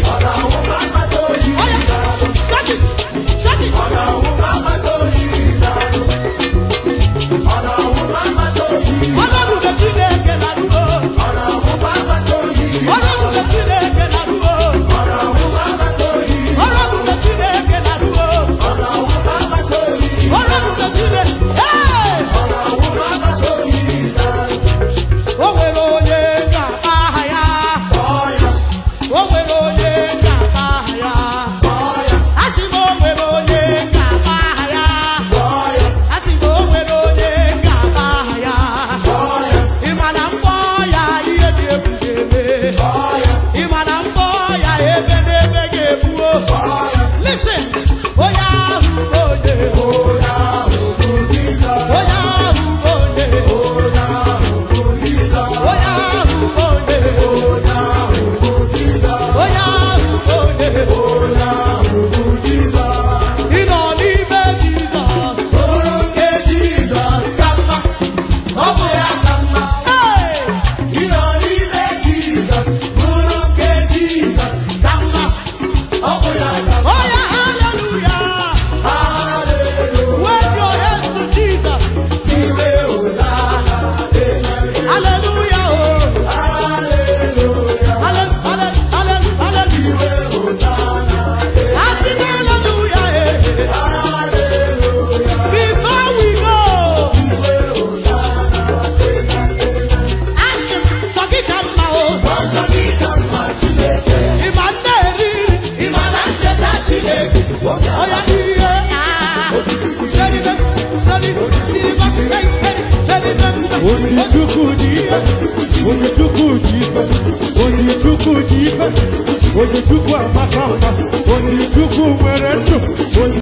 Roda uma, dois, ó yá òde o. Onye Chukwu ji ife Onye Chukwu ji ife Onye Chukwu amaka mma